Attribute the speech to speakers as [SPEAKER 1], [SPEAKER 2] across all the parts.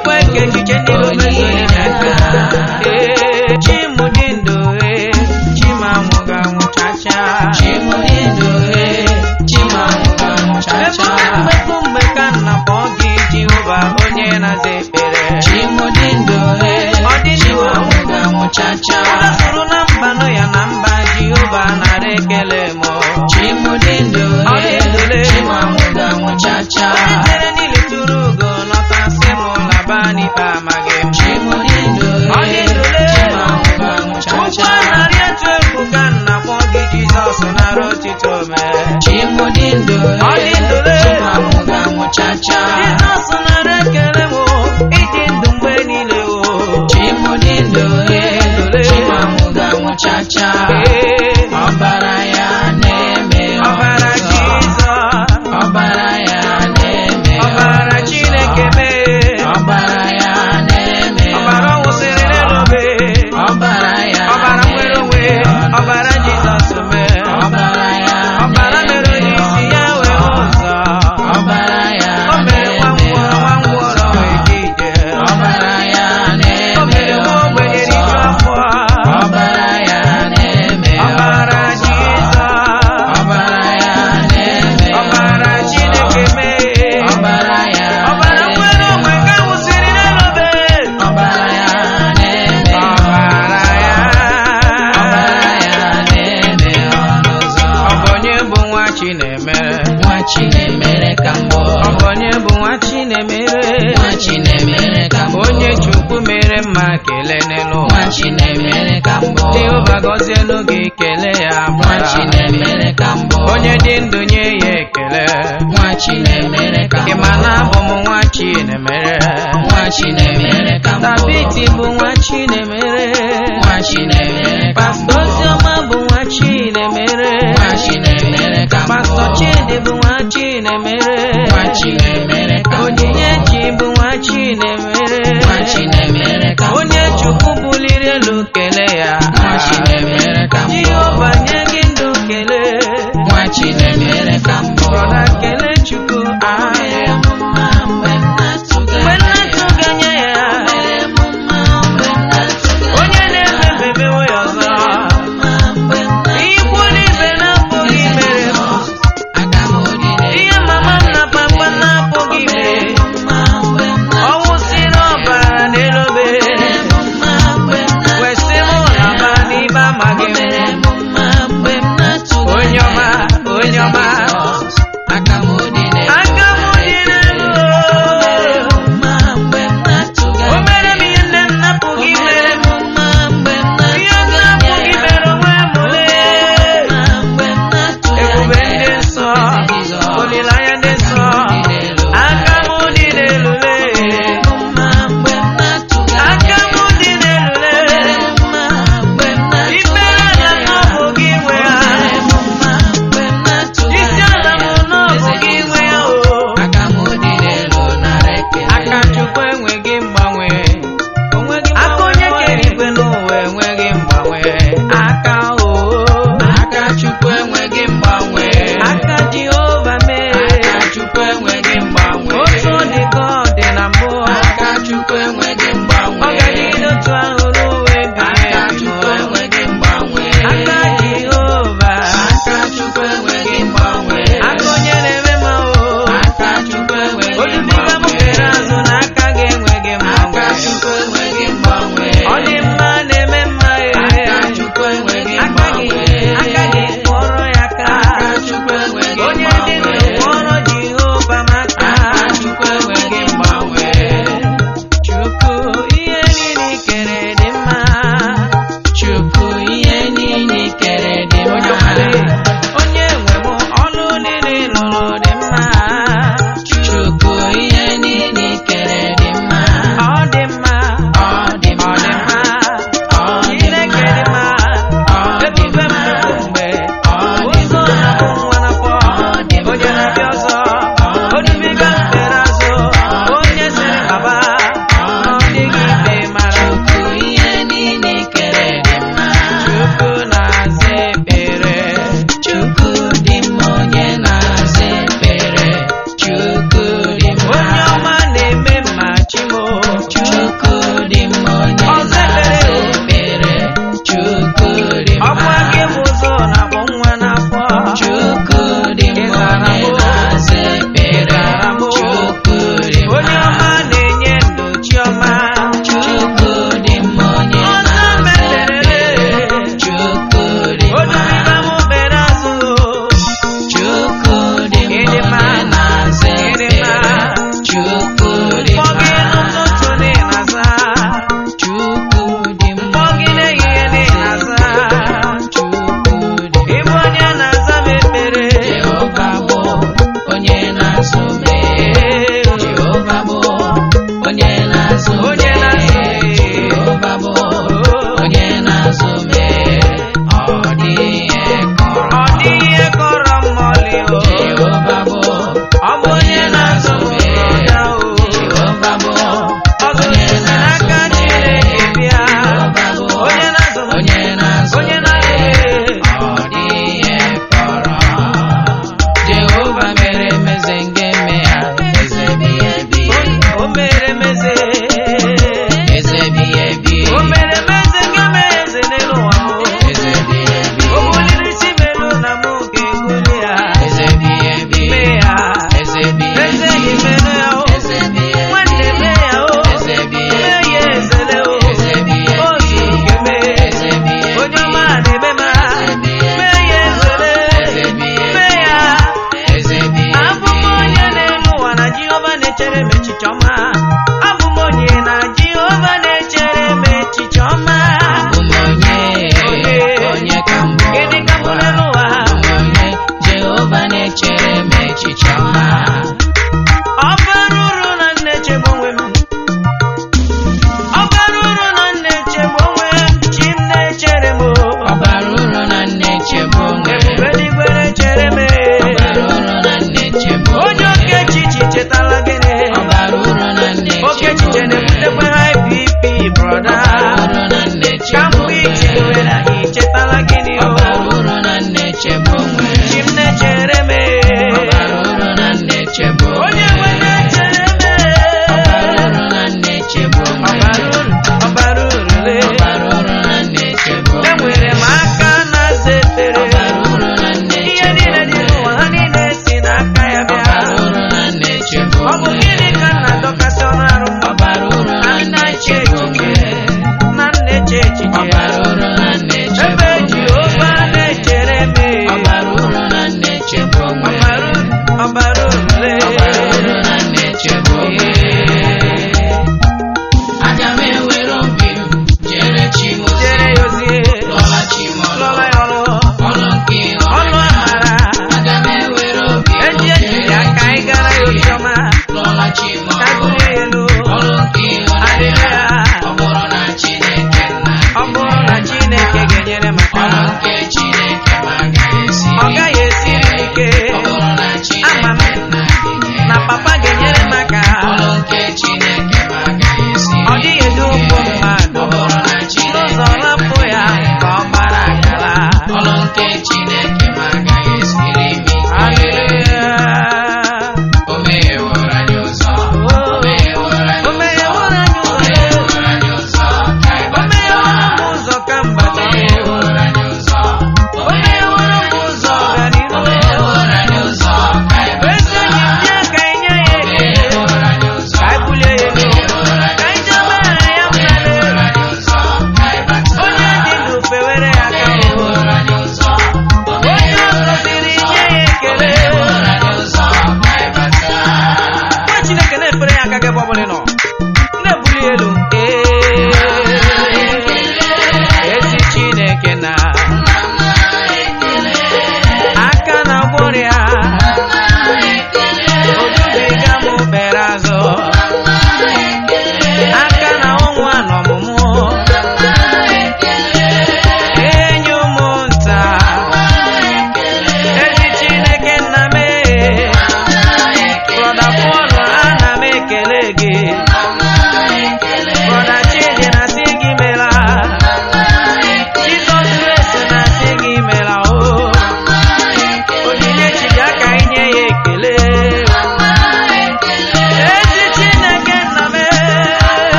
[SPEAKER 1] ekwe ka echiche Obidi bụ nwa Chinemere Onyinyechi bụ nwa Chinemere onye Chukwu buliri elu kele ya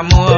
[SPEAKER 1] amor.